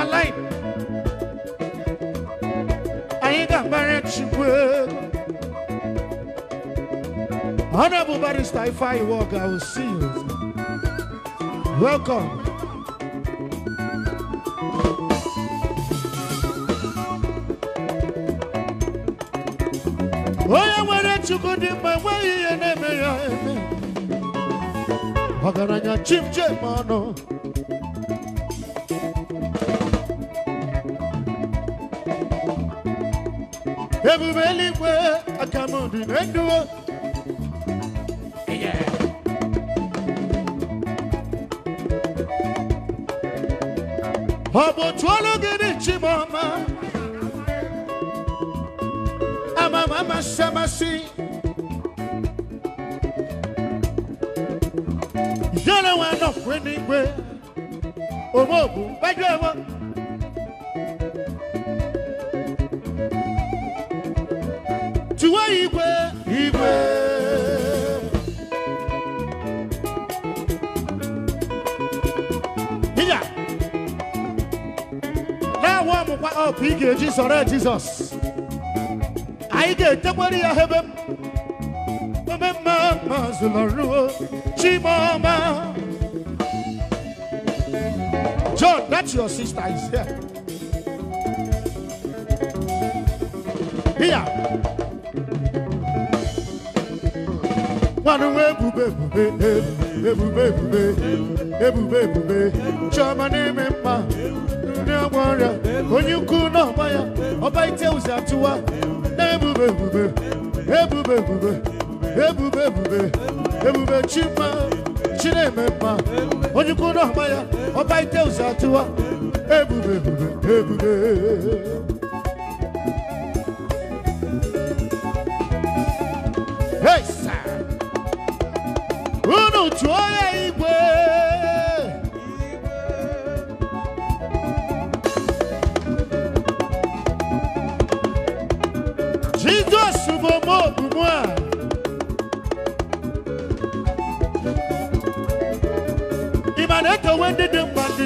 I alive anyị ga-agbara chukwu honorable barrister ifeanyi work i will see you welcome onye nwere chukwu dị mma enweghị ihe na-eme ya eme ọgaranya chimchim ọnụ ebube eluigwe aka m dị na ndụ ọ bụ otu ọlụ gị dị mama, amama amasị amasị yere nwa nọkwe n'igwe omeobu gbajọ ewo up ị ga-eji sọrọ Jizọs anyị ga-etekwere ya ebe mmemme maazị Lọruo Chimoma John that's your sister is here here nwanụ ebube ebube ebube ebube ebube ebube chioma na-eme mma ọgbọrọ onye ukwu n'ọgba ya ọba ite ụzọ atụwa na-ebube ebube ebube ebube ebube ebube ebube chima chineme mma onye ukwu n'ọgba ya ọba ite ụzọ atụwa ebube ebube ebube Hey, sir! Unu tụọ ya!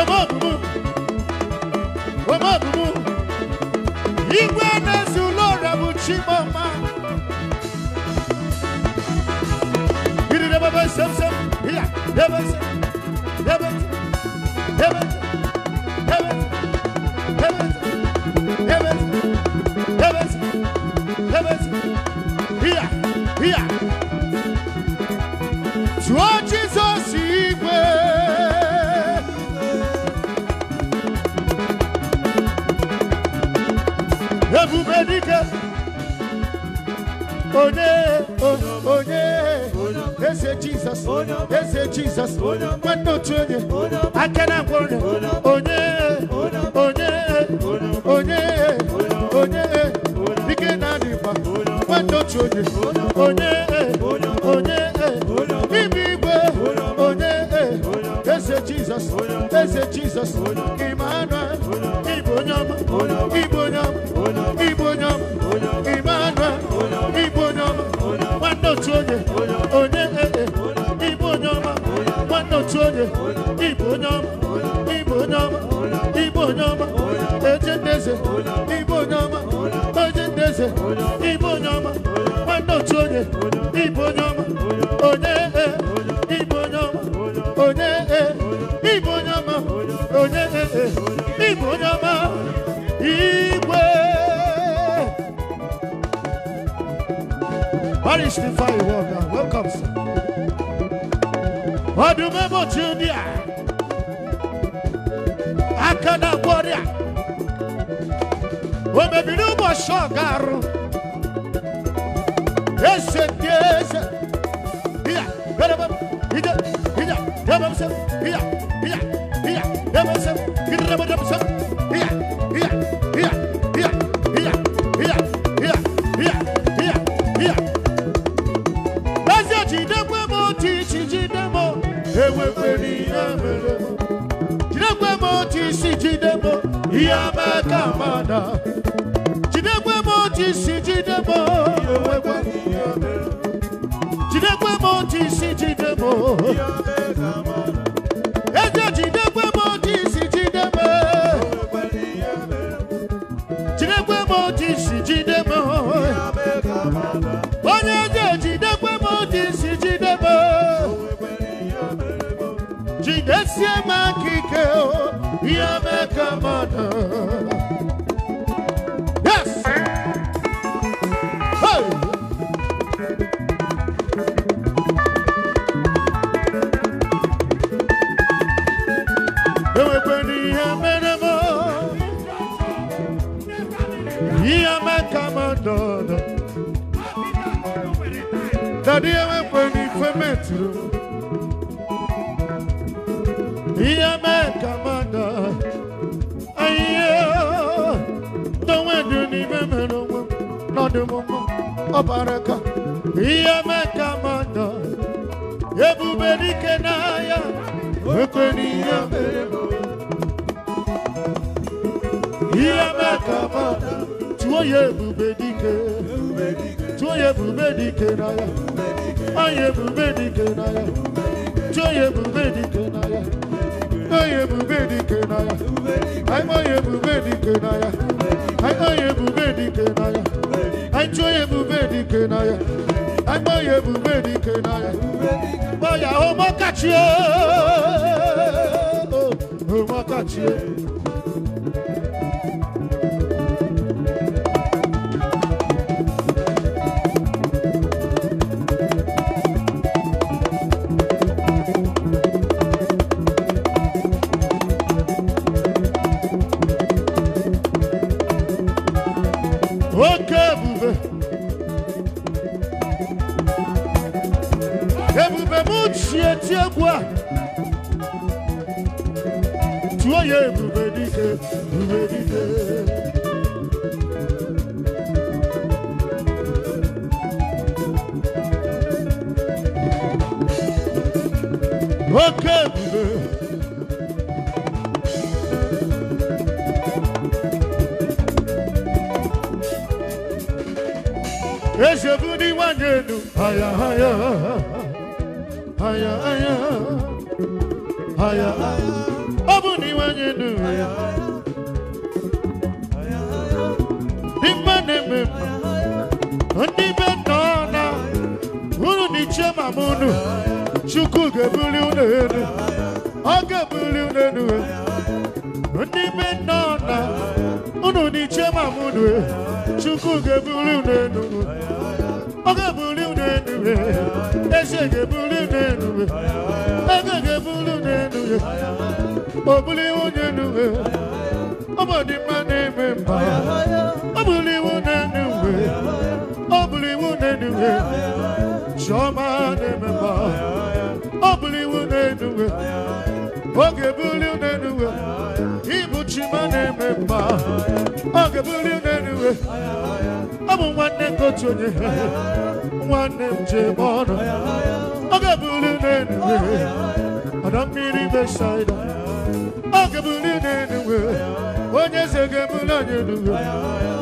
ọmọ dúdú ọmọ dúdú igwe na-esi ụlọ ọrịa bụ chimama irire bebe semsem ya Oh Oh They say Jesus. They say Jesus. But no training. I cannot go. Onye. Onye. Onye. Onye. Begin a river. But no Oh Oh Oh training. Onye. Onye. Ibibe. Onye. They say Jesus. They say Jesus. Emmanuel. Ibonyama. Ibonyama. onye onye Ibu onye ọma nwanne otu onye ịbụ onye ọma ịbụ onye ọma Ibu onye ọma eje ndeze ịbụ onye ọma eje ndeze ịbụ onye ọma nwanne otu onye ịbụ onye ọma onye East Ifeanyi Walker. Welcome, sir. Odumebo Junior. Akana Warrior. Omebiru Moshogaru. Ese Deze. Iya, Bereba, Ida, Ida, Debamsem, Iya, Iya, Iya, Debamsem, Ida, Debamsem, Ida, Debamsem, aka mada jidekwe m jide onye eje jidekwe jidesie m aka ihe mee ihe meka ebube dike n'ahịa ekwe n'ihe ihe meka mmadụ tụọ ya ebube dike tụọ ya ebube dike n'ahịa anyị ebube dike n'ahịa tụọ ya Ancho ebube dike na ya. Agbo ebube dike na ya. Boya o mo kachi o. O mo kachi onye ebube dike ebube dike oke ebube ezebu ndị nwanyị n'ime mma ndị be nna na unu na ichie mama unu chukwu ga-ebuli unu elu ọ ga-ebuli unu elu ndị be nna na unu na ichie mama unu chukwu ga-ebuli unu elu ọ ga-ebuli unu elu eze ga-ebuli unu elu ego ga-ebuli unu elu obuli unu elu ọ bụ na-eme mma Chọma na-ememba ọ bụrụ iwu na ọ ga bụrụ na-enuwe ịbụ chima na-eme mma oge bụrụ na-enuwe ọ bụ nwanne nke otu onye nwanne m ji eme ọnụ oge bụrụ na-enuwe ọdọ mmiri besaida oge bụrụ onye eze ga-eburu anyị enuwe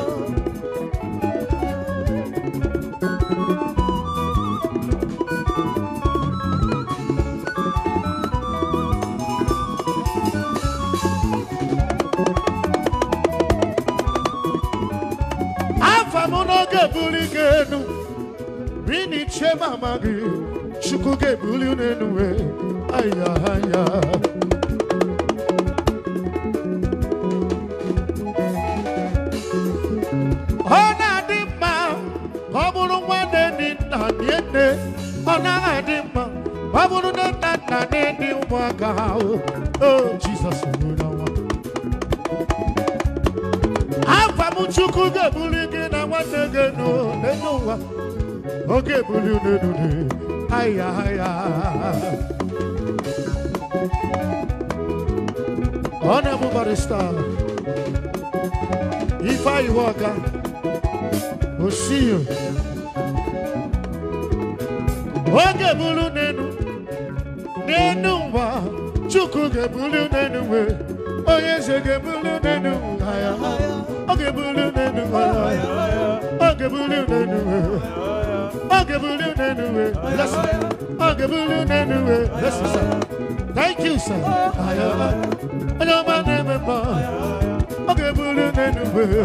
Chukwu ga-ebuli gị enu rini aya aya ọ na-adị mma ọ bụrụ nna ọ adị mma ọ bụrụ nna ụmụaka onye n'elu oge Honorable Osiyo oge ebuli n'elu ụwa Chukwu ga-ebuli unenu wee onye eze ọ na ebuli Thank you, sir. I know my name is Bob. I'll give you anyway.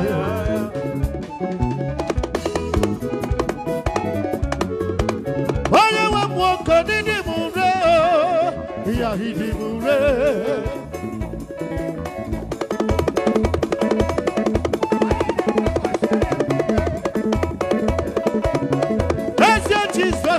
Why you walk on the moon? Yeah, he did.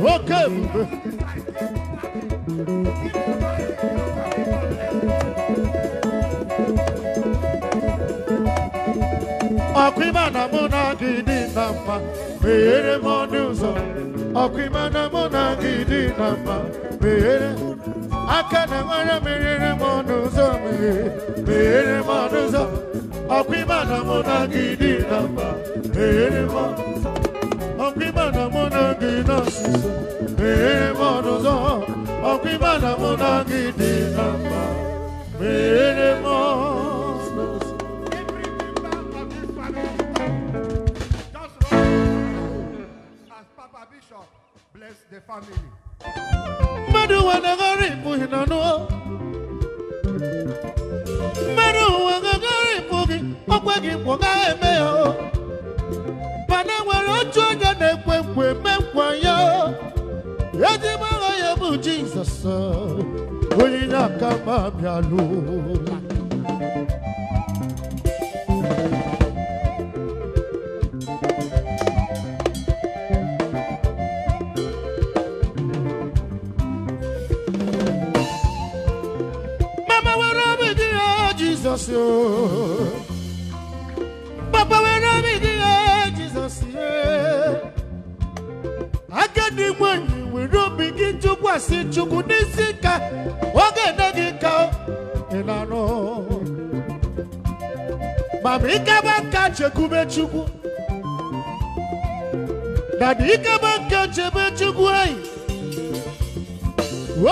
welcome. Ọ̀pìmọ̀nà múná gidi nà mma, meghere m ọnụ ụzọ. Ọ̀pìmọ̀nà múná gidi nà mma, meghere aka na nwere meghere m ndangina sisa Memonozo Okimana monangi dinamba Menemos As Papa Bishop bless the family Madu wanagari muhinanua Madu wanagari mugi Okwegi mwaga emeo We wemekwanyo ejimara ya bụ jizọs onye aka m abịalụ mama were obi gị ya jizọs tụkwasị chukwu n'isi ka oge ene gị ka ị na-anụ ma ma ikeba nka chukwu dada ikeba nka chebe chukwu eyi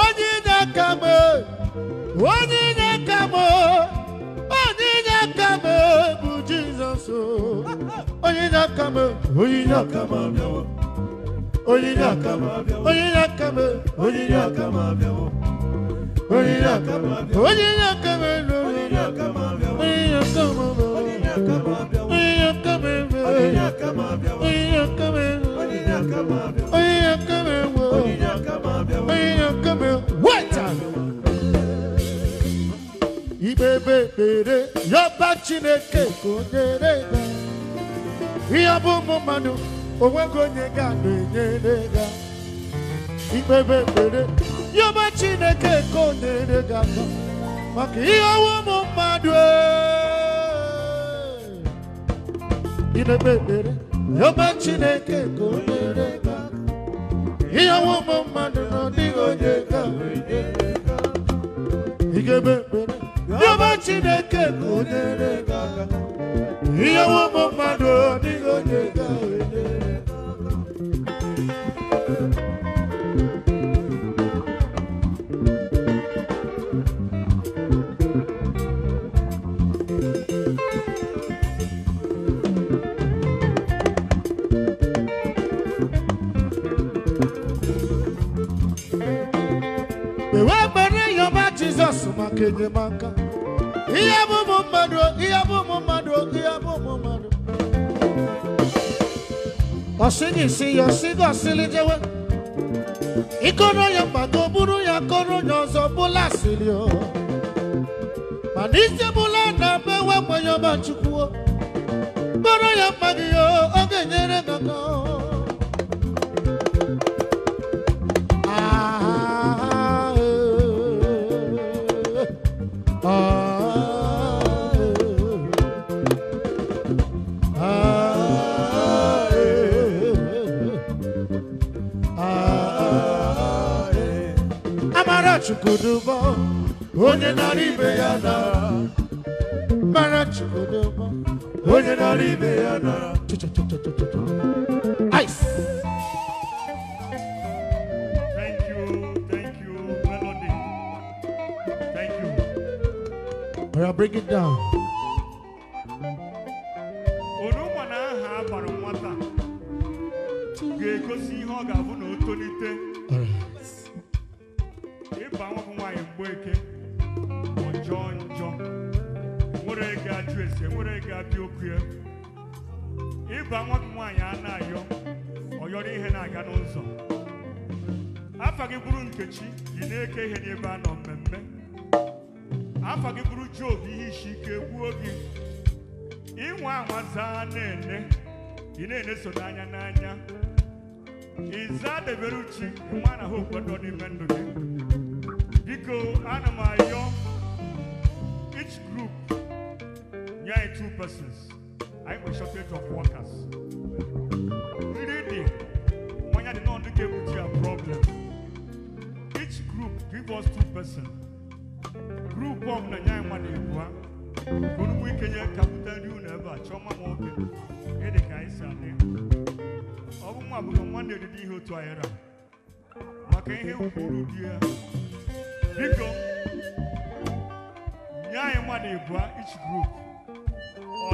onye inye aka m onye inye aka m onye inye aka m bụ onye inye aka onye inye aka m oyiri akama oyiri akama oyiri akama oyiri akama oyiri akama oyiri akama oyiri akama oyiri akama oyiri akama oyiri akama oyiri akama oyiri akama oyiri akama oyiri akama oyiri akama wẹta. Ibebe ekpere yọba Chineke ka o nyere ya ihe ọ bụ ụmụ mmadụ. onwego onye ga-enyere gị ikpebe ekpere chineke ka o nyere gị maka ihe ọnwụ ụmụ mmadụ ikpebe ekpere yọba chineke ka o nyere ihe ọnwụ ụmụ mmadụ na ọdịghị onye ga-ikpebe ekpere yọba chineke ka ihe ụmụ mmadụ ọdịghị onye ga maka enyemaka ihe bụ ụmụ mmadụ ihe bụ ụmụ mmadụ ihe bụ ụmụ mmadụ ọsịgị isi ya ọsịgị ọsịlị jewe ịkọrọ ya mgbado bụrụ ya koro onye ọzọ bụla asịrị o mana isi bụla na be wekwenye ọba chukwu kpọrọ ya mma gị o ọ ga-enyere gị aka onye nara ya mara onye ya ice thank you thank you melody thank you I'll bring it down ịba nwa gị nwaanyị a na-ayọ ọyọrọ ihe na-aga n'ụzọ afa gị bụrụ nkechi yi na-eke ihe n'ebe a nọ mmemme afa gị bụrụ job ihe isi ike gbuo gị ịnwa anwa zaa na-ene ị na-eneso n'anya n'anya ịza debere uchi nwa na ha okwedo n'ime ndụ gị biko ana m ayọ each group nye anyị two persons anyị nwere shortage of workers nri dị mmanya dị nọọ ndị ga-egbuchi ya problem each group give us two person group of nye anyị mmadụ ebua ka onugbu ike nye ka bute unu ebe a chọọ ma m oge ịdị ka anyị adị ọ bụ nwa bụghị nwanne eriri ihe otu ahịrị maka ihe kwuru di ya anyị mmadụ ebua each group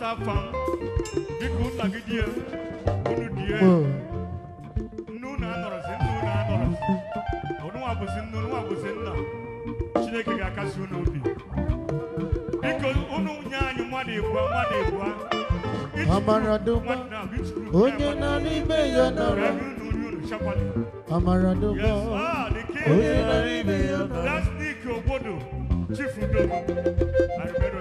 sa fam bi ku nagi die bunu die nu na nọrọ si nu na nọrọ onu wa bụ si nu onye na n'ime ya nọrọ amaradụgba onye na n'ime ya nọrọ last week obodo chief udogo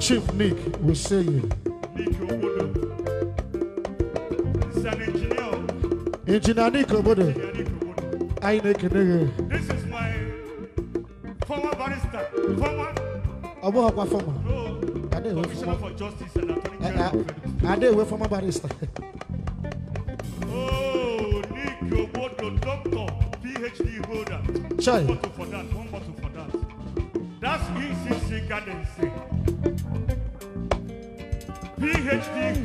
Chief Nick we say you. Nick Obodo. He's an engineer. Engineer Nick Obodo. I Nick Obodo. This is my former barrister. Former. Abu former. No. Ade we for Justice and Attorney eh, General. Eh, Ade we former barrister. Oh, Nick Obodo, doctor, PhD holder. Chai. One bottle for that. One bottle for that. That's ECC Garden State.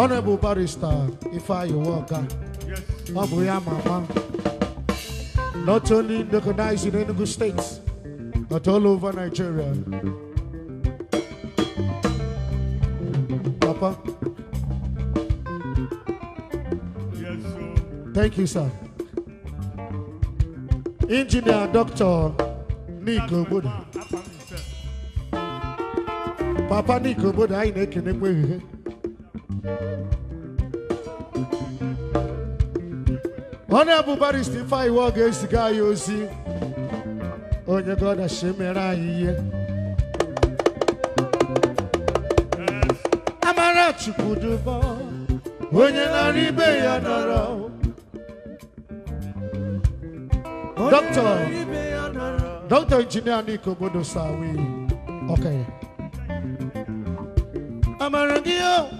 Honorable Barrister Ifeanyi Uwuoka, ọ bụ ya mama, not only recognized in Enugu states, but all over Nigeria. Papa. Yes, sir. Thank you, sir. Engineer Dr. Nick Obodo. Papa Nick Obodo, I na-ekene kwa onye bụ barista Ifeiwe ọ ga-eziga ya ozi onye gọdachi mere anyị ihe amara chukwuduba onye nara ibe ya nọrọ dọkịta dọkịta injinia Nike obodo Sawi okenye amara gị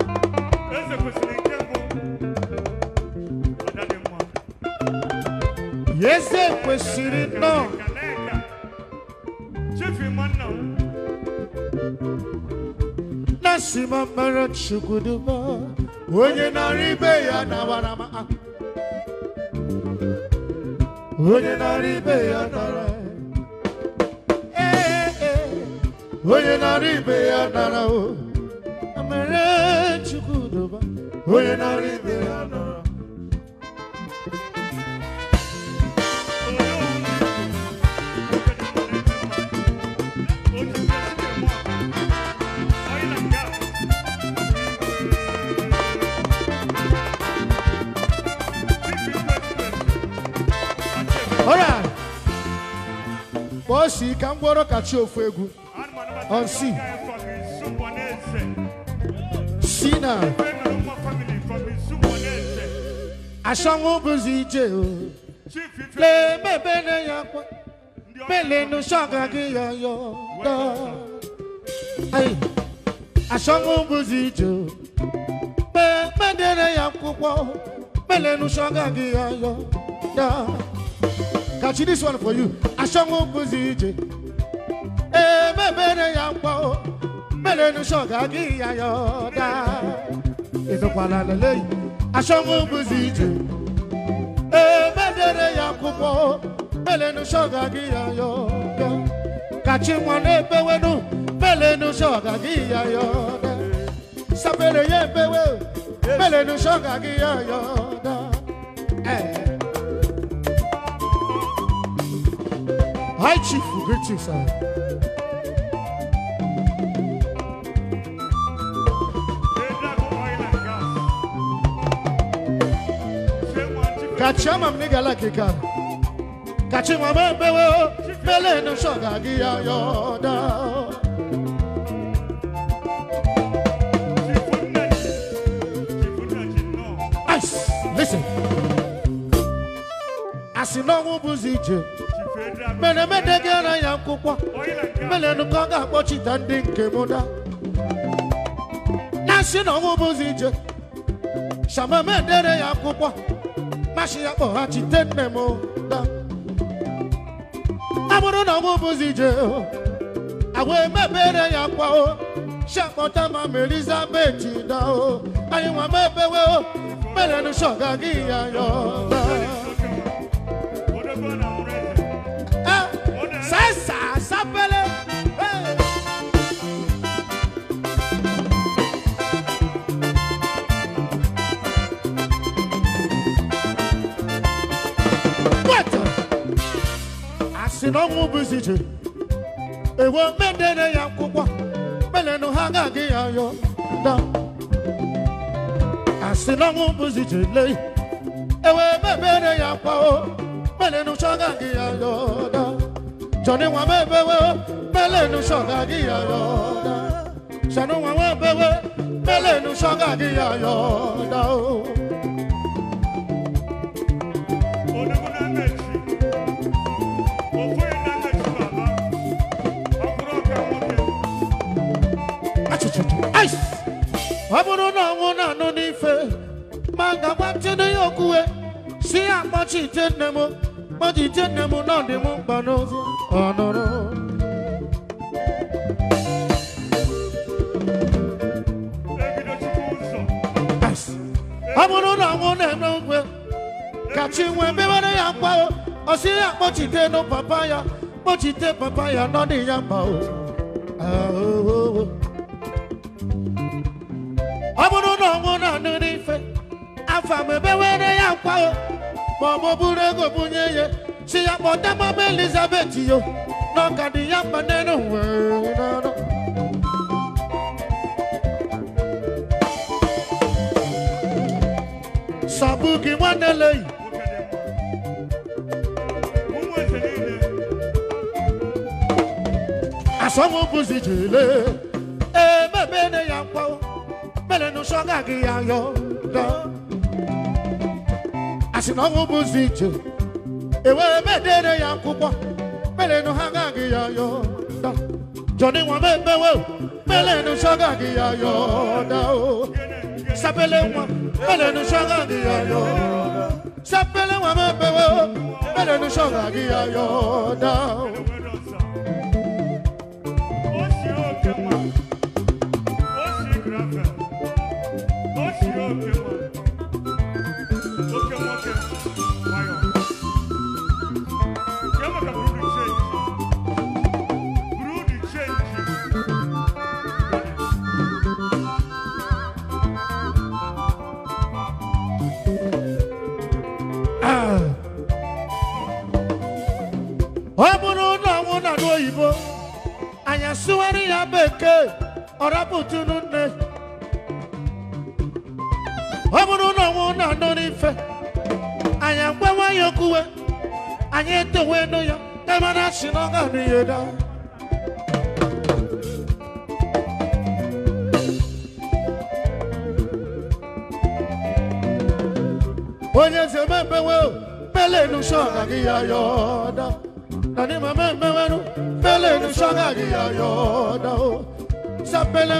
eze kwesịrị nnọọ na onye ibe ya onye nara ibe ya nara eh, eh, eh. ee onye na-arịbịa ya nọrọ bọọsụ ka egwu on si asɔnwó bùsùn ìjẹ o lè bèbè ní yàgbọ bèlè nu sọgà kí yọyọ dọ asɔnwó bùsùn ìjẹ o bè bèdè ní yàgbọ bèlè nu sọgà kí yọyọ dọ. Kachi, this one for you. Ashango Buzije. Eh, me bene yampo. Mele no shoga gi ayoda. Ito kwala lele asọmụ bụzi ije emedere eh, ya akwụkwọ melenu shọga gị ya yọda kachi nwa na-ebewenu melenu shọga gị ya yọda sapere ya ebewe melenu shọga gị ya yọda eh. High Chief, greetings, sir. kachima m n'igala kika kachima m ebewe mele nu shoga gị ya yọda Listen. Asị n'ọnwụ bụzi ije mere mede ya nkwụkwa mere nụ ka ọ ga-akpọchita ndị nke m da na asị bụzi ije shamamedere ya akwụkwọ mashiapo achite nne m a bụrụ na ọnwụ bụzi ije agwa emebere ya kwao shakpọta ma ma elizabeth dao anyị nwa mebewe merenu shoga gị ya yọla si na ọnwụ bụzi ije ewe mendere ya nkwụkwa melenụ ha agaghị ya yọ da asị na ọnwụ bụzi ije ewe mebere ya kwa o melenụ chọ agaghị ya yọ da jọni nwa mebewe melenụ chọ agaghị ya yọ da shanụ nwa mebewe melenụ chọ agaghị ya yọ da o ọ bụrụ na ọnwụ na-anụ n'ife ma ngagwa ntene ya okwuwe si ya akpọchi ite nne m kpọchi ite nne m na ọdịm mkpa n'ozi ọ nụrụ na ọnwụ na-eme ukwe ka chi nwee mewere ya mkpa o si ya akpọchite nụ papa ya kpọchite papa ya n'ọdị ya mkpa o ah, oh. ọ bụrụ na ọnwụ nọ n'ụdị ife afa m ya nkwa ma ọ bụ bụrụ ego bunye ya si ya kpọta mama elizabeth yo n'ọka dị ya mkpa n'elu wee n'ọrụ sọbụ nwanne leyi asọmụ bụzi jele emebene ya nkwa melenoshonga ngiyayo lo asinongo buzitho ewe medere yankupo melenohanga ngiyayo lo joni wamebewe melenoshonga ngiyayo lo sapele wa melenoshonga ngiyayo sapele wa mebewe melenoshonga ngiyayo lo yoda Nani mame me wenu Pele nu shanga gi yoda Sapele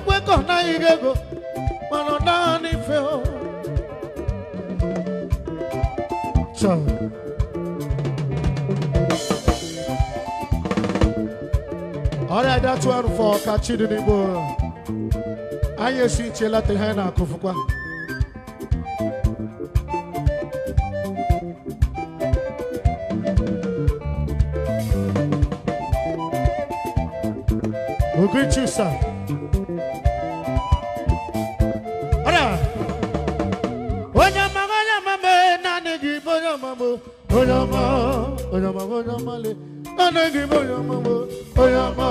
ekwekọ naghị gị ego mana naanị ọrịa dị one for ọka n'igbo anyị esi iche lata ihe anyị na adịghị m onye ọmụmụ onye ọma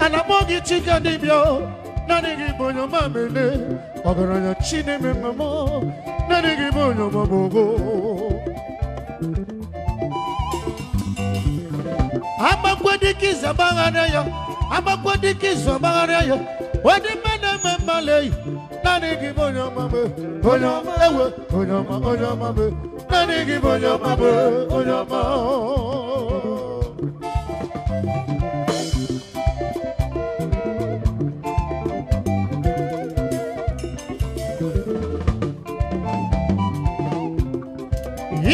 ana m ndị chike dịbịa naanịghị bụ onye ọma mene ọgaranya chineme mmemme naanịghị bụ onye ya agbakwo dịka izu ọgbagharịa ya ụdị mme na-eme mmalị naanị gị onye onye ewe onye ma onye ọma bụ naanị gị bụ onye ọma bụ onye ọma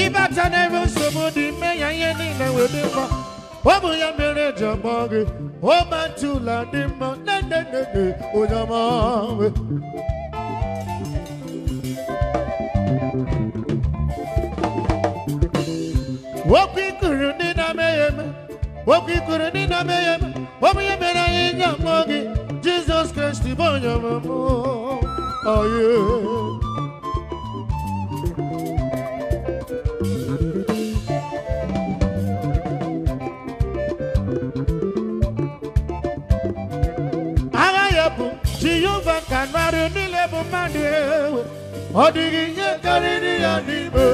ịbata n'ebe nsogbu dị ya ihe niile wee dị mma ọ bụ ya mere eji ọgbọ gị Woman to land him, na na na na, Oyama. Woki kuruni na meyem, woki kuruni na meyem, womi mera inga mogi, Jesus Christ ibonyama mo, oh yeah. na mmadụ bụ mmadụ ewe ọ dịghị ihe karịrị ya n'ime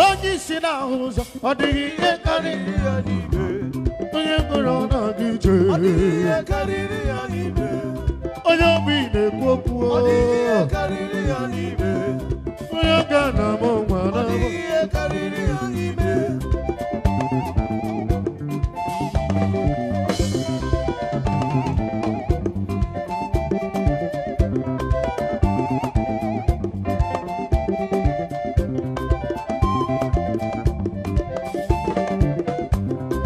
onye isi n'ahụ ụzọ ọ dịghị ihe karịrị ya n'ime onye mkpụrụ ọ na-aga ije ọ dịghị ihe karịrị ya n'ime onye ogbi na-ekwu okwu ọ dịghị ihe karịrị ya n'ime onye ọga na-ama nwa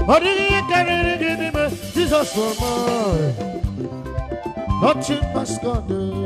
Hariye kararı gidime siz asılma Açın başkanı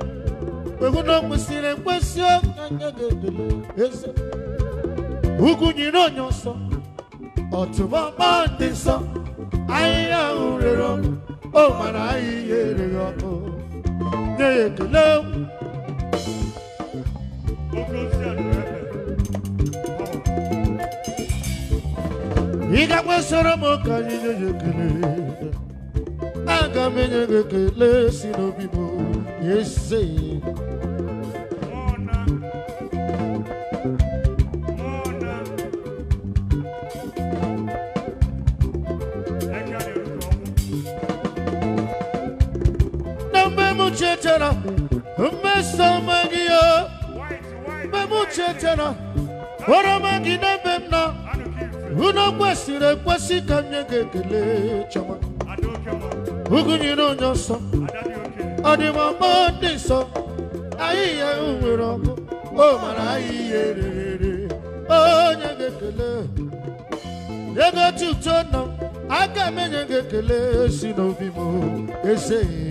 weguna kwesịrị ekwesị ọnyanya ga-edele eze ugwu nyere onye nsọ ọtụmọkpa dị nsọ ahịhịa ahụ rere ọ mara ahịhịa ereghị ọkụ nye ya ekele ị gakwa soro m ka anyị nye ya ekele aga m enye gị ekele si n'obi m eze tena mmesoma gị ya mmemuche tena oroma gị n'ebe m nọ unu kwesịrị ekwesị ka m nye gị ekele chọma ugụnyere onye nsọ ọdịmọma ndị nsọ anyị ihe ọkụ o mara anyị ihe rere onye ga-ekele ego tuto nọ aga m enye gị ekele si n'obi m ezeghị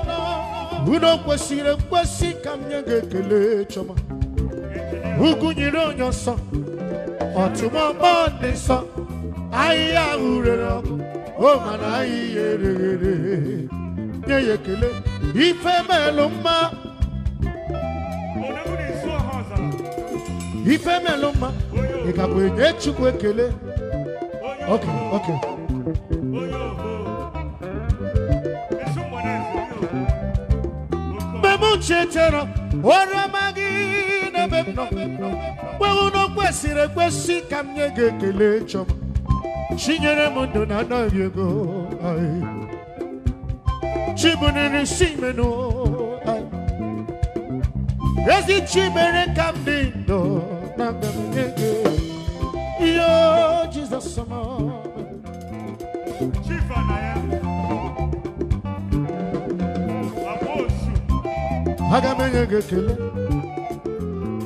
o kwesịrị nkwesị ka m nye gị ekele chọma ugwu nyere onye nsọ ọtụmọkpọ ahịhịa ahụ ọkụ o mana ahịhịa nye ya ekele ife melụ mma ife mma ị ga bụ enye Chukwu ekele chetara ọra magi n'ebe m nọ kwewu na kwesịrị ekwesị ka m nye gị ekele chọma chinyere m ndụ na anaghị ego chibuniri si menụ ezi chibere ka na mgbe m nye gị ihe Jizọs mọ aga m enye gị ekele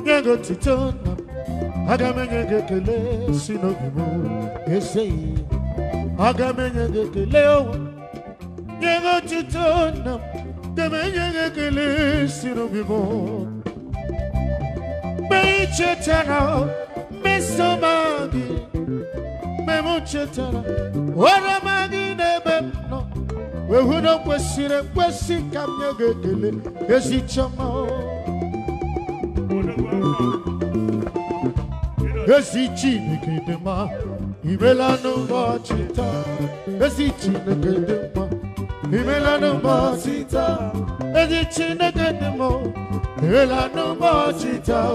nye gị otito na aga m enye gị ekele si n'obi m eseghị aga m enye gị ekele owe nye gị otito na aga m enye gị ekele si n'obi m mgbe ị chetara mesoma gị mgbe m chetara oroma gị n'ebe m wehu na kwesịrị ekwesị ka m nye gị ekele ezi chiọma ezi chineke dị mma imela n'ụbọchị taa ezi chineke dị imela n'ụbọchị taa ezi chineke dị imela n'ụbọchị taa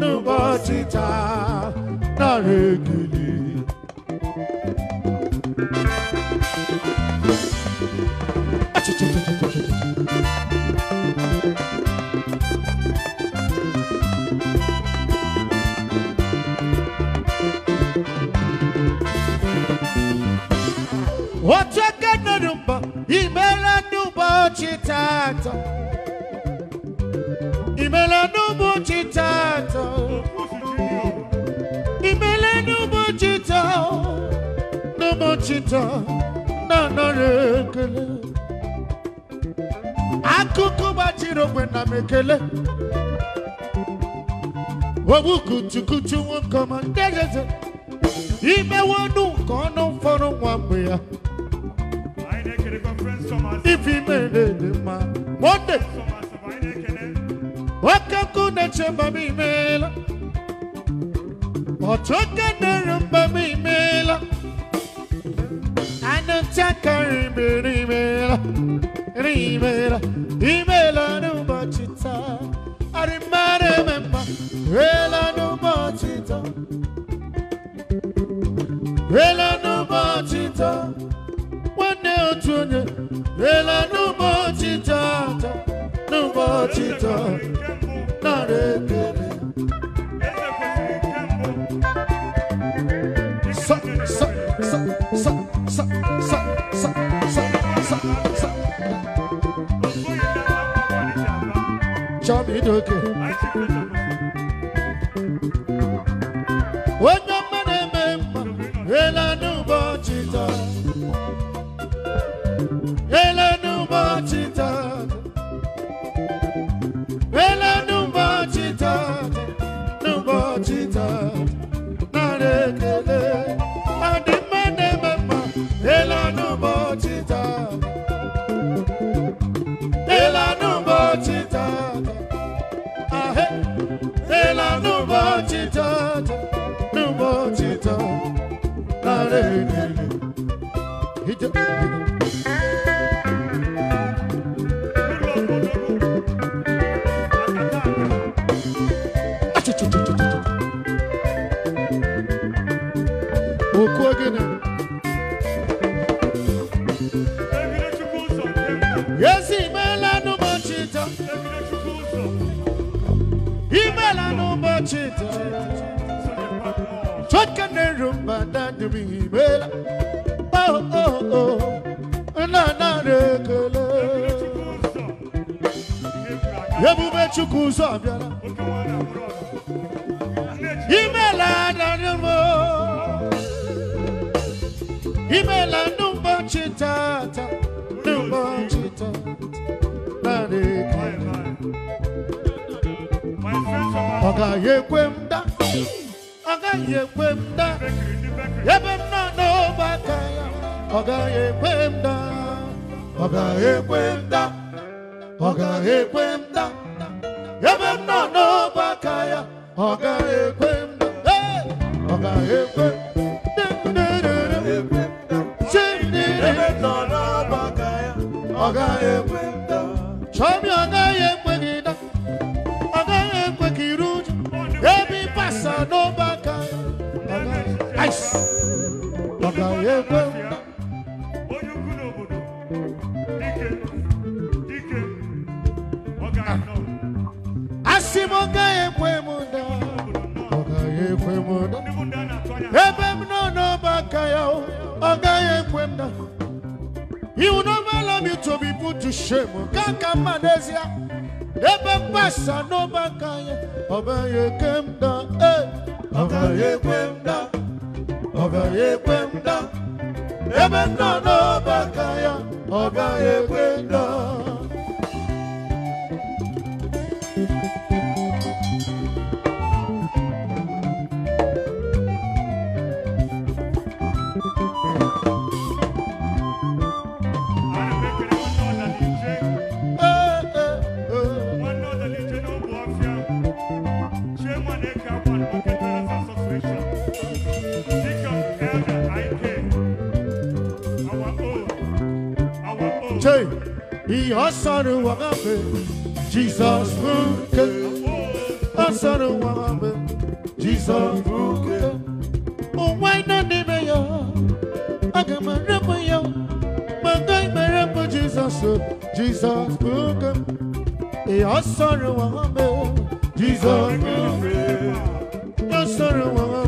n'ụbọchị taa na ekele Ochakanumba, Imela Numba Chitato. Imela Numba Chitato. Imela Numba Chitato. Numba Chitato. na Rekele. Akuku Bachiro Gwena Mekele. Wabukutukutu Wankama Ndezeze. Imewanu Kono Fono Wambia ifi mele ne ma monde wakaku ne chemba mi mela otoka ne rumba mi mela anutaka rimbi rimela rimela rimela rumba chita arimare memba rela rumba chita rela rumba chita nwanne otu onye lela n'ụbọchị tata n'ụbọchị tata nara ekele Chop okay. Hit chukwu ụzọ bịara imela n'ụbọchị tata n'ụbọchị tata naanị ọ gaghị ekwe m da ọ gaghị ekwe m da ebe m nọ n'ọba ya ọ gaghị ọ gaghị ekwe m ọ gaghị ekwe m ọbara ekwe mda ọbara ekwe mda ebe na n'ọba aka ya ọbara ekwe mda ọsọrọ wọn bá bẹ jesus buke ọsọrọ wọn bá bẹ jesus buke. òwe iná níbẹ̀ yọ agamọ̀rẹ́pọ̀ yọ gbọ̀ngàn ìmọ̀rẹ́pọ̀ jesus jesus buke ọsọrọ wọn bá bẹ jesus buke ọsọrọ wọn bá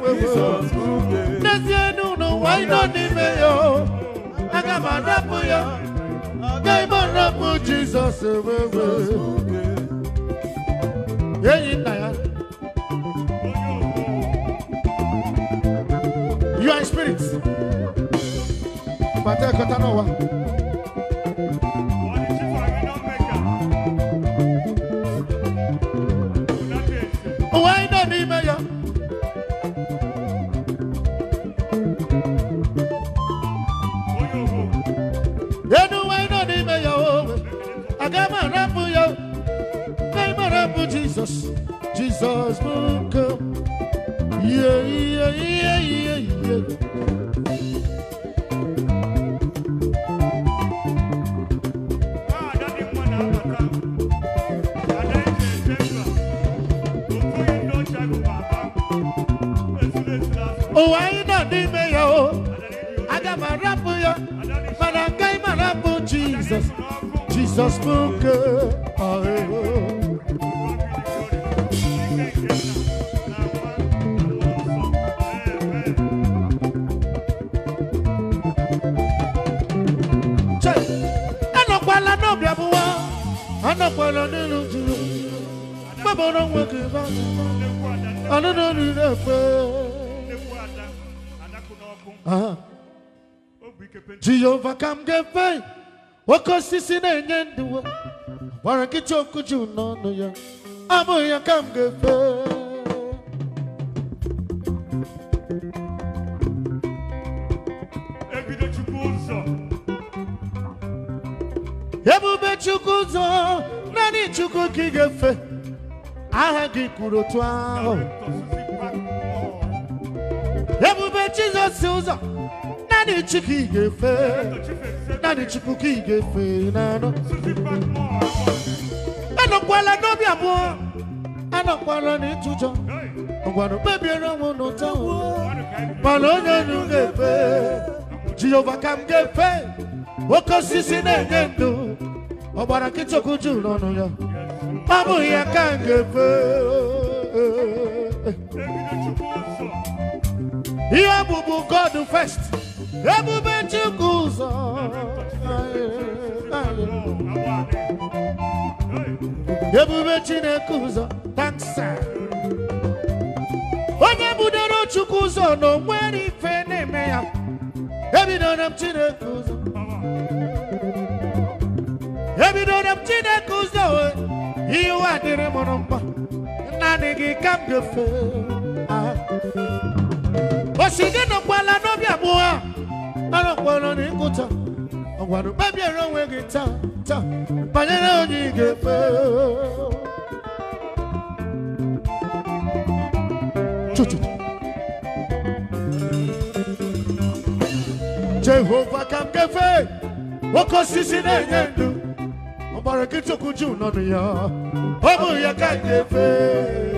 bẹ jesus buke. lẹ́sìn ẹnu nù wáyé náà níbẹ̀ yọ agamọ̀rẹ́pọ̀ yọ. ọrọpụ jizọs wewe enyi you are in spirit bata Oh, I anyị nọ n'ime ya o aga m arapụ ya mana agaghị m I jizọs jizọs bụ nke ọhụrụ anọkwala n'elu juru mgbabara nwoke ba anụnụ riri ekwe jehova ka m ga-efe oke osisi na-enye ndụ gwara nkịta okwu juu n'ọnụ ya bụghị ya ka m ga-efe ebube chukwu ụzọ naanị chukwu ka ị ga-efe aha gị kwuru otu ahụ Jizọs ụzọ naanị Chukwu i ga-efe naanị Chukwu ka ị ga-efe n'obi abụọ anọkwala n'ịtụjọ ngwanụ kpebiere onwe n'ụtọ mana onye onye ga-efe Jehova ka m ga-efe oke osisi na-enye ndụ ọgbara nkịtị okwu juru n'ọnụ ya ọ bụghị ya ka m ga-efe ihe bụbu God first ebube Chukwu ụzọ ebube Chineke ụzọ taksa onye budoro Chukwu ụzọ na onwere ife na-eme ya ebidoro m Chineke ụzọ ebidoro m Chineke ụzọ ihe adịrị dịrị mụrụ mma naanị gị ka m osige nọkwala n'obi abụọ anọkwala n'ịkụta ọgwara kpebiere onwe gị taa taa banyere onye ị ga-efe jehova ka m ga-efe oke osisi na-enye ndụ ọgbara gị chukwu juu ya ọ ya ka m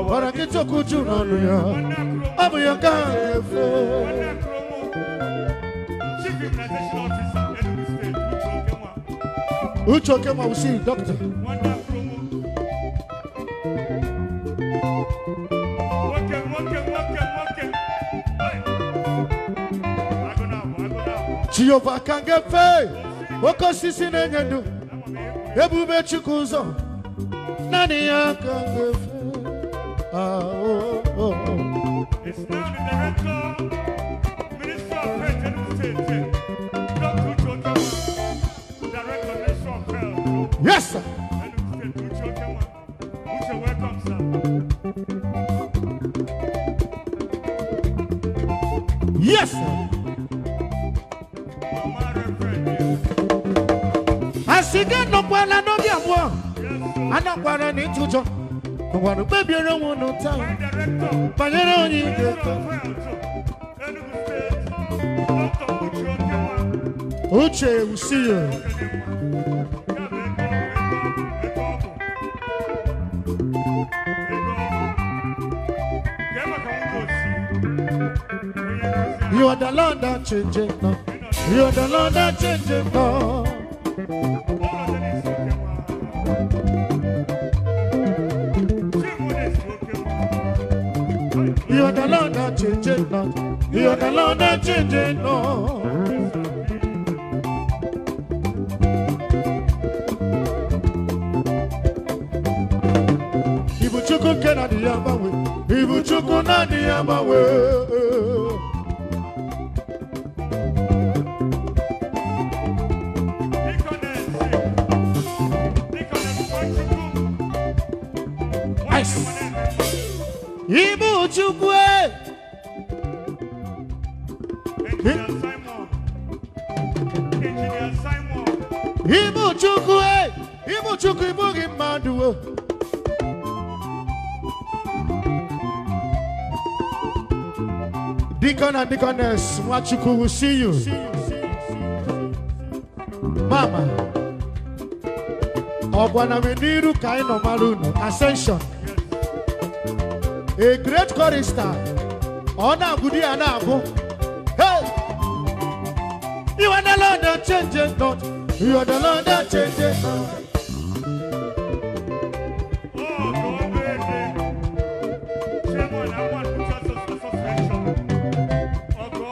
ọbara nkịtị okwu ju n'ọnụ ya ọ bụ ya nke ahụ na-efe uche okenwa wụsi ka ngefe oke osisi na-enye ndụ ebube ụzọ naanị ya oh, oh, Yes, sir. Yes, sir. Asiga no kwa la no vya mwa. Ana kwa la ni chucho ngwanụ kpebiere onwe unu taa banyere onye ị ga-eto uche usiyo You are the Lord that changes now. You are the Lord that changes now. changing, no. Ibuchukwu na agbanwe, Deacon and Deaconess Mwachuku, will see you. Mama, Ogwanaminiru Kaino Marunu, Ascension. A great chorister, Ona Gudi Anago. Hey! You are the Lord that changes not. You are the Lord that changes not.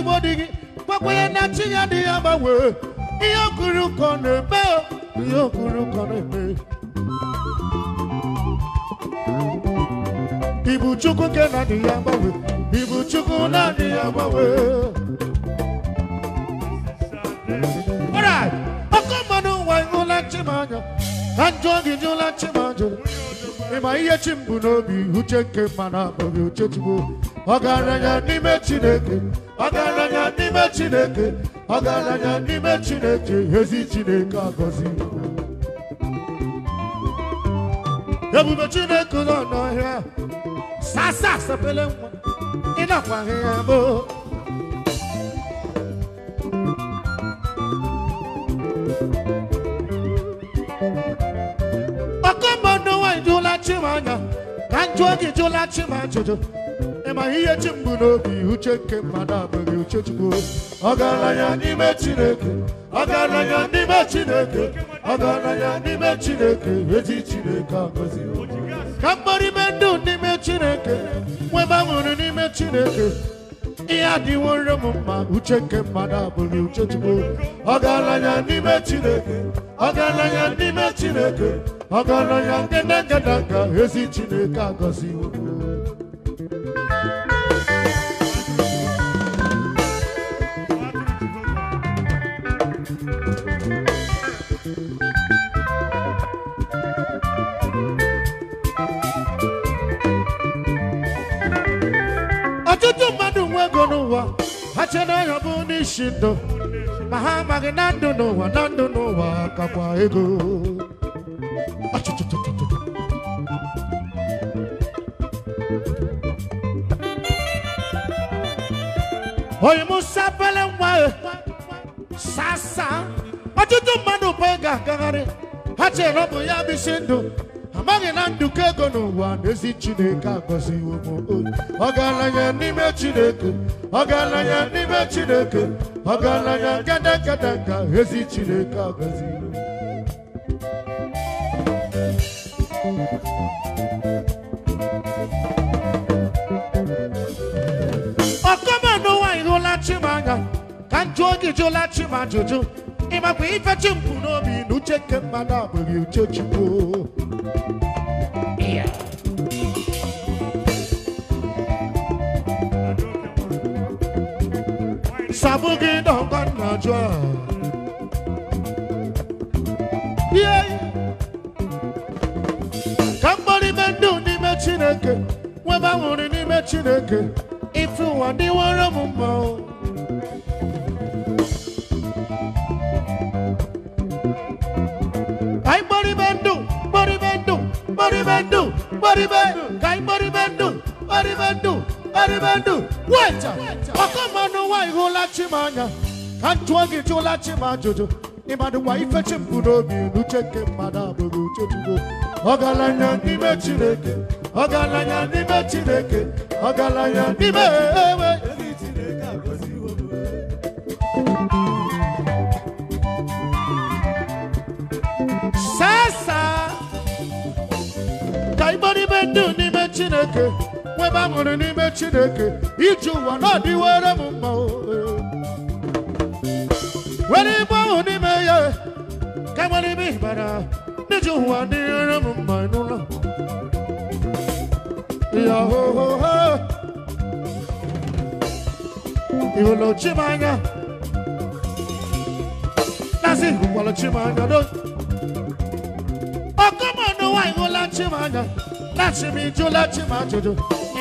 igbo dị gị gwakwanye na chi ya dị ya gbanwee ihe okuru ka na-eme ihe okuru ka na-eme ibu chukwu ke na dị ya ibu chukwu na adịghị ya ọkụ mmanụ nwa ịhụla chimanya na njọ gị jụla chimanya ịma ihe chi m bụ n'obi uche nke mma na abụghị uche chigbo ọgaranya n'ime chineke ọgaranya n'ime chineke ọgaranya n'ime chineke ezi chineke agọzi ebube chineke nọ n'ọhịa sasa sepele nwa ịnakwaghị ya bụ ọkọmmọdụ nwaanyị jụla chim ka njụ oge jụla chim jụjụ. ma ihe chi mbụ n'obi uche nke mmadụ abụghị uche chukwu ọgaranya n'ime chineke ọgaranya n'ime chineke ọgaranya n'ime chineke ezi chineke agọzi ka mgbarime ndụ n'ime chineke nwe gbanwere n'ime chineke ihe adịworo m mma uche nke mmadụ abụghị uche chukwu ọgaranya n'ime chineke ọgaranya n'ime chineke ọgaranya ngedengedanga ezi chineke agọziwo n'ụwa ha chere ya bụ ndị isi ndụ ma ha amaghị na ndụ n'ụwa na ndụ n'ụwa kakwa ego oyi musa pele nwa e, sasa ọtụtụ mmadụ bụ ga-agagharị ha chere ọ bụ ya bụ isi ndụ amaghị na nduke ego n'ụwa n'ezi chineke akwaziwo m olu ọgaranya n'ime chineke ọgaranya n'ime chineke ọgaranya gadagada nka ezi chineke akwaziwo jụọ gị jụla chim ajụjụ ịmakwa ife chi mpụ n'obi na uche nke mmadụ abụghị uche chukwu Sabu gị dọkwa nna jụ a. Ka mgbarịme ndụ n'ime Chineke, nweba nwụrụ n'ime Chineke, ife ụwa dịwara m mma o. Anyị mgbarịme ndụ, mgbarịme ndụ, mgbarịme ndụ, mgbarịme. erime ndụ weta ọkọ mmanụ nwaanyị hụla chi m anya ka m jụọ gị jụla chi m ajụjụ ịmadụkwa ife chi m n'obi n'uche nke mmadụ abụghị uche chukwu ọgaranya n'ime chineke ọgaranya n'ime chineke ọgaranya n'ime ewe saa ka ịgbọ n'ime ndụ n'ime chineke ọkwa ebe a n'ime chineke iji ụwa na ọdịwere m mma nwere ibe ahụ n'ime ya ka nwere ibe ịbara iji ụwa dịrịrị m mma n'ụlọ ya hohoho iwolochimanya nasị iwolochimanya do ọkọmọnụ nwaanyị wụla anya na m chimijụla chimajụjụ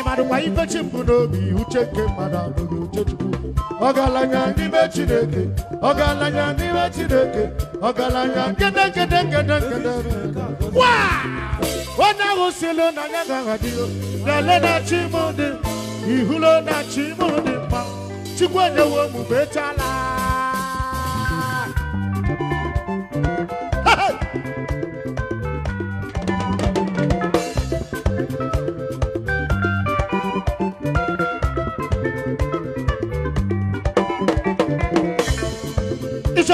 mmadụ nwa ibechi mbụ n'obi uche nke mmadụ uche chukwu n'ime chineke n'ime chineke onye ahụ na ya ga-aghadịgo lele na chi ihulo na chi m dị mma chukwu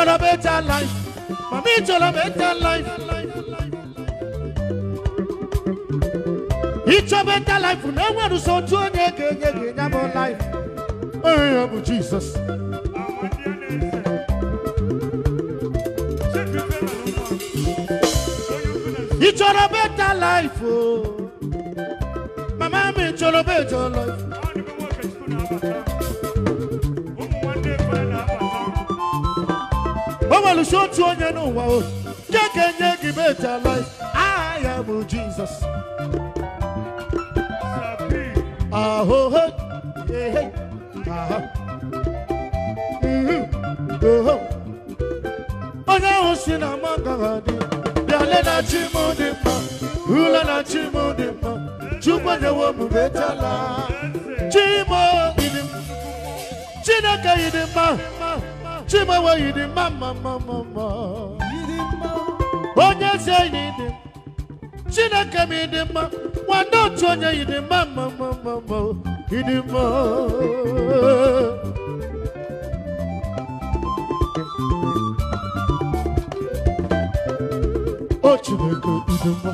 on a better life. Mommy on a better life. It's a better life. No one is so to a life. Oh, Jesus. It's a better life. Oh. Mama, it's on a better life. enweresi otu onye n'ụwa o nke ga-enye gị betala aha ya bụ jizọs ahụhụ ehe aha mhm, oho onye ahụ si na mangara dị bịale na chi dị mma ule na chi dị mma chukwu nyewo m betala chi m dị mma chineke yi dị mma Chimewe yi dị mma mma mma mma mma onye ezi enyi dị Chineke m ịdị mma nwanne otu onye yi dị mma mma ma mma mma ịdị mma o Chineke ịdị mma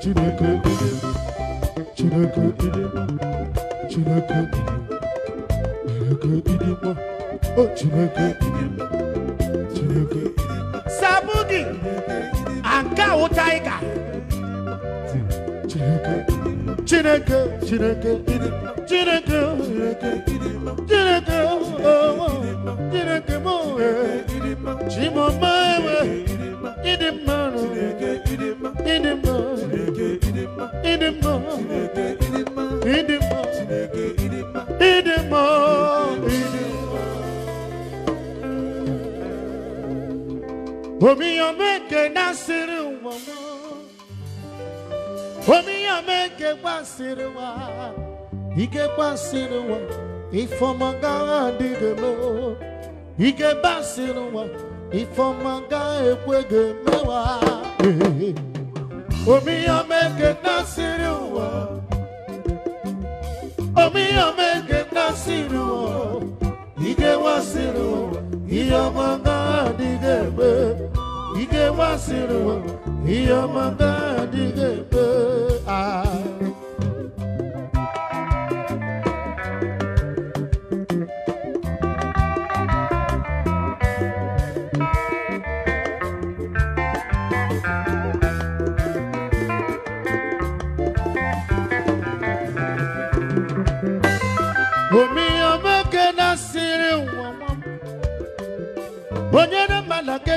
Chineke ịdị mma Chineke ịdị mma Chineke ịdị mma Chineke ịdị mma Chineke Chineke sabudi nke chineke Chineke Chineke Chineke Chineke Chineke Chineke m chimọma ịdị ịdị Omi omeke nasiri uwamo Omi omeke kwasiri wa Ike kwasiri wa Ifomanga adigelo Ike basiri wa Ifomanga ekwege mewa Omi omeke nasiri wa Omi omeke nasiri wa Ike wasiri wa Iyomanga adigelo ike wasịrị iye ọma ga-adịghị ebe a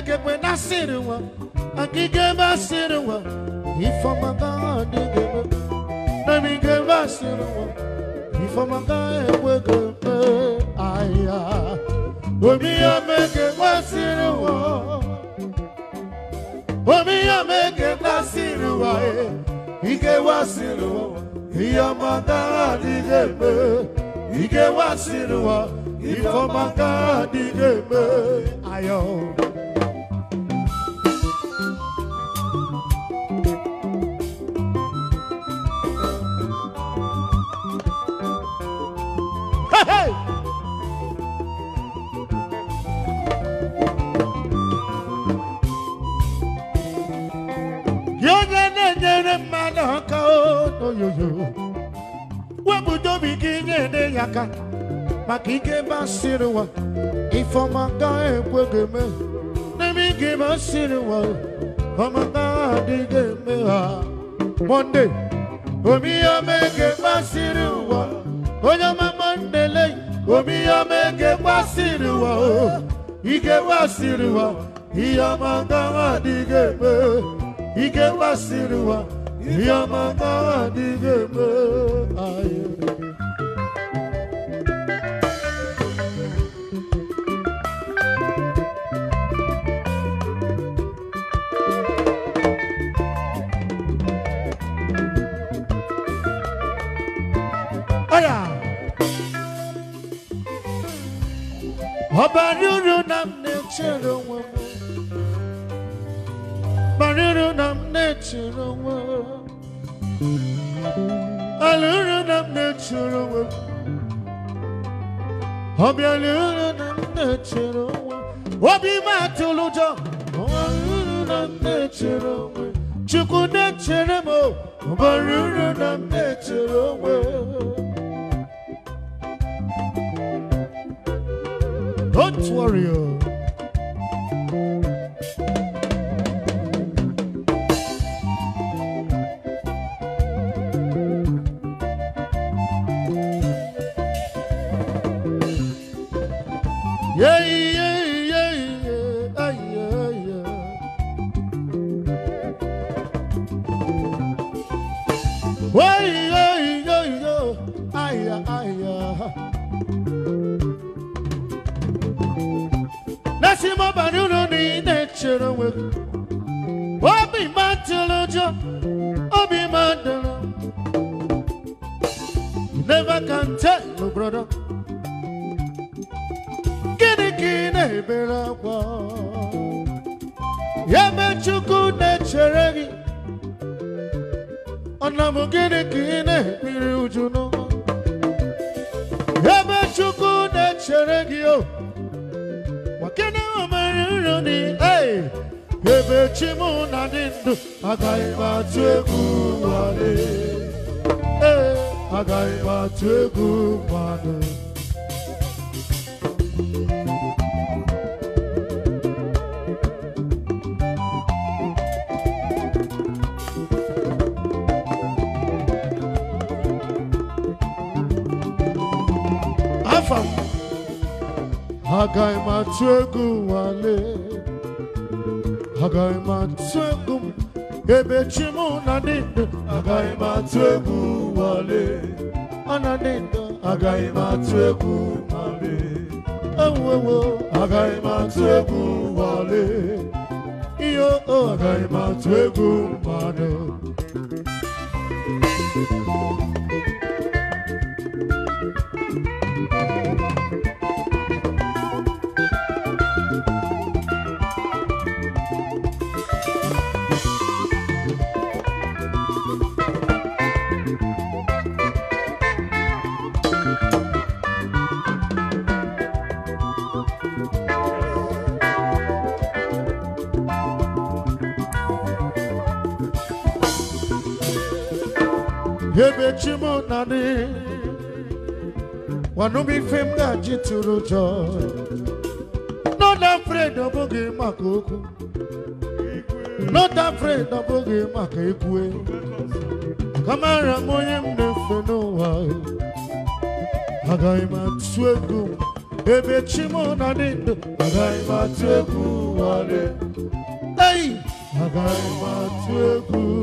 agegbe nasịrị nwa agịga ebe asịrị nwa ifọmaga adịghị eme namiga ebe asịrị nwa ifọmaga ekwego mpe ahịa omi ya mege nwasịrị nwa omi ya mege nasịrị ike wa nwa eh, ihe ọmaga adịghị eme ike wasịrị nwa ifọmaga adịghị eme ayọ oyoyo wepụta obi gị nye ede ya aka maka ike basịrị ụwa ifeọma gaghị ekwe ga-eme n'ebe ike o ụwa ọma gaghị adịghị eme ha mọnde omiyome ga-egbasịrị ụwa onye ọma mọnde lei omiyome ga-egbasịrị ụwa ike gbasịrị ụwa ihe ọma gaghị adịghị eme ike gbasịrị ụwa Yamana diveme ayere. Habyalı oh, agaghị m atụ wale hagai m atụ egwu m ebe chi m na ndị ndụ agaghị wale ọ na agaghị m atụ egwu ma ọlị enwewo agaghị m atụ egwu ma ọlị ihe o agaghị m atụ egwu mmadụ naanị gwanụm ife m ga-eji tụrụ ụjọ not afraid ọ bụghị maka okwu not afraid ọ bụghị maka ekwe kamara m onye m na-efe n'ụwa agaghị m atụ egwu ebe chi m na dị ndụ agaghị m atụ egwu ụwa dị atụ